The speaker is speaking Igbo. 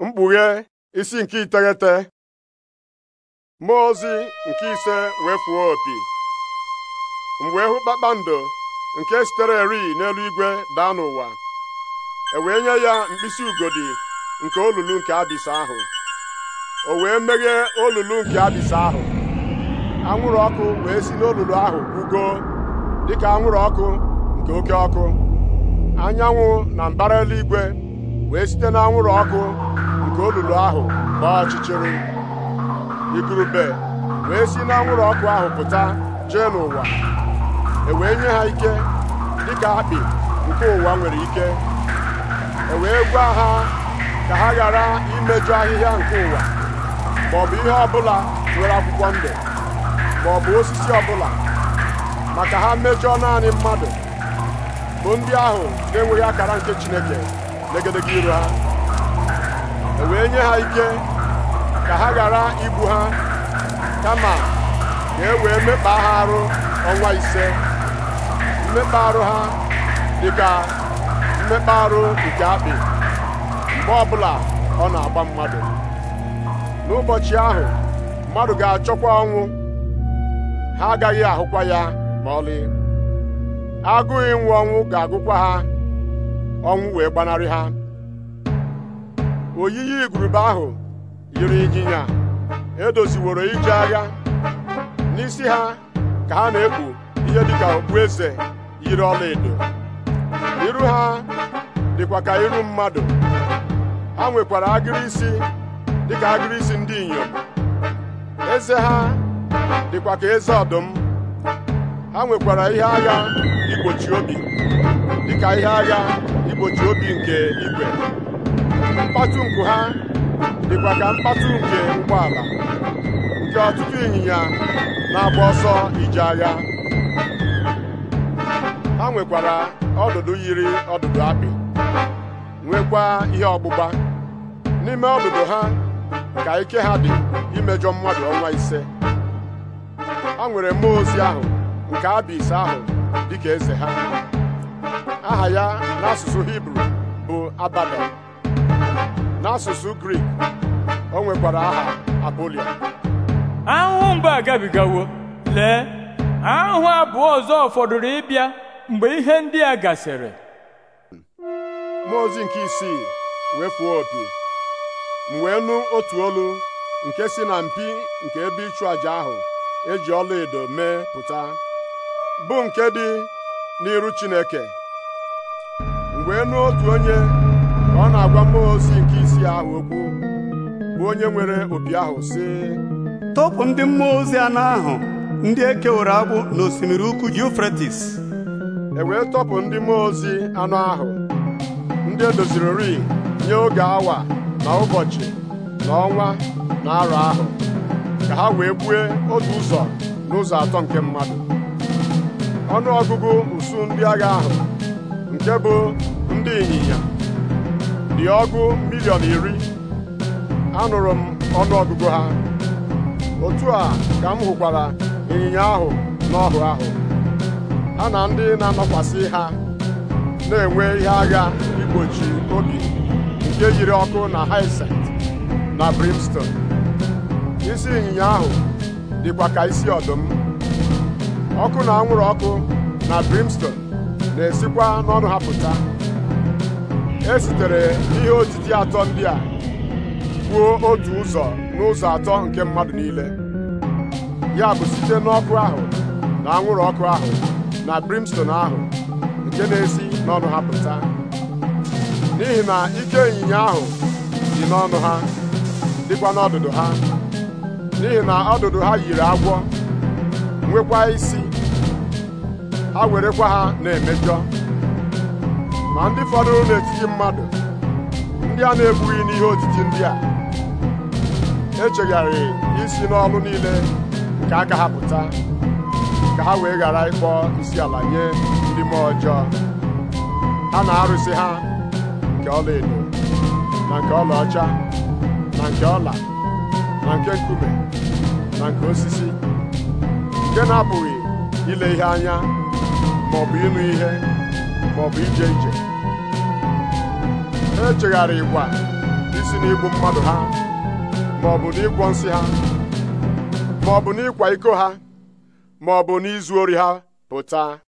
mkpughe isi nke iteghete mmụọ ozi nke ise wee fuo opi mgbe wee hụ kpakpando nke sitere erighi n'eluigwe daa n'ụwa e wee nye ya mkpịsị ugodi nke olulu nke abịs ahụ o wee meghee olulu nke abịsa ahụ anwụrụ ọkụ wee si n'olulu ahụ dị dịka anwụrụ ọkụ nke oke ọkụ anyanwụ na mbara eluigwe wee site na anwụrụ ọkụ nke olulu ahụ gbaa ọchịchịrị igurube wee si n'anwụrụ ọkụ ahụ pụta jee n'ụwa e wee nye ha ike dịka akpị nke ụwa nwere ike e wee gwa ha ka ha ghara imejọ ahịhịa nke ụwa maọbụ ihe ọbụla nwere akwụkwọ ndụ maọbụ osisi ọbụla maka ha mejọọ naanị mmadụ bụ ndị ahụ na-enweghị akara nke Chineke n'egedege ha e wee nye ha ike ka ha ghara ibu ha kama ka e wee mekpa ha arụ ọnwa ise mmekpa arụ ha dịka mmekpa arụ nke akpị mgbe ọbụla ọ na-agba mmadụ n'ụbọchị ahụ mmadụ ga-achọkwa ọnwụ ha agaghị ahụkwa ya ma ọlị agụghị nwụ ọnwụ ga-agụkwa ha ọnwụ wee gbanarị ha oyiyi igurube ahụ yiri ịnyịnya edoziworo ije agha n'isi ha ka ha na-ekpu ihe dịka eze yiri ọla edo iru ha dịkwa ka iru mmadụ ha nwekwara agịrị isi dịka agịrị isi ndị inyom eze ha dịkwa ka eze ọdụm ha nwekwara ihe agha igbochi obi dịka ihe agha igbochi obi nke igwe Mkpatu nku ha dịkwa ka mkpatu nke ụgbọala nke ọtụtụ ịnyịnya na-agba ọsọ ije agha ha nwekwara ọdụdụ yiri ọdụdụ apị nwekwa ihe ọgbụgba n'ime ọdụdụ ha ka ike ha dị imejọ mmadụ ọnwa ise ha nwere mmụọ ozi ahụ nke abis ahụ dịka eze ha aha ya n'asụsụ hibru bụ abadan n'asụsụ grik o nwekwara aha apolia ahụhụ mgbe agabigawo lee ahụhụ abụọ ọzọ fọdụrụ ịbịa mgbe ihe ndị a gasịrị mmụọ ozi nke isii wee fụọ opi m wee nụ otu olu nke si na mpi nke ebe ịchụ àjà ahụ eji ọlaedo mee pụta bụ nke dị n'iru Chineke wee nụ otu onye ka ọ na-agwa mmụọ ozi nke isi ahụ okwu bụ onye nwere opi ahụ sị tọpụ ndị mmụọ ozi anọ ahụ ndị e kewara agbụ n'osimiri ukwu Yufretis e wee tọpụ ndị mmụọ ozi anụ ahụ ndị edozirori nye oge awa na ụbọchị na ọnwa na arọ ahụ ka ha wee gbue otu ụzọ n'ụzọ atọ nke mmadụ ọnụ ọgụgụ usu ndị agha ahụ nke bụ ndị ịnyịnya dị ọgụ miliọn iri anụrụ m ọnụọgụgụ ha otu a ka m hụkwara ịnyịnya ahụ n'ọhụ ahụ ha na ndị na-anọkwasị ha na-enwe ihe agha igbochi obi nke yiri ọkụ na hyacinth na brimstone isi ịnyịnya ahụ dịkwa ka isi ọdụm ọkụ na anwụrụ ọkụ na brimstone na-esikwa n'ọnụ ha pụta e sitere ihe otiti atọ ndị a kwuo otu ụzọ n'ụzọ atọ nke mmadụ niile ya bụ site n'ọkụ ahụ na anwụrụ ọkụ ahụ na brimstone ahụ nke na-esi n'ọnụ ha pụta n'ihi na ike ịnyịnya ahụ dị n'ọnụ ha dịkwa n'ọdụdụ ha n'ihi na ọdụdụ ha yiri agwọ nwekwa isi ha werekwa ha na-emejọ ma ndị fọdụrụ n'etiti mmadụ ndị a na ebughị n'ihe otiti ndị a echegharị isi n'ọlụ niile nke aka ha pụta ka ha wee ghara ịkpọ isi ala nye ndị mmụọ ọjọọ ha na-arụsị ha nke ọla edo na nke ọcha na nke ọla na nke nkume na nke osisi nke na-apụghị ile ihe anya ma bụ ịnụ ihe maọbụ ije ije ha echegharị ikwa isi igbu mmadụ ha maọbụ ịkwọ nsị ha maọbụ n'ịkwa iko ha maọbụ n'izu ori ha pụta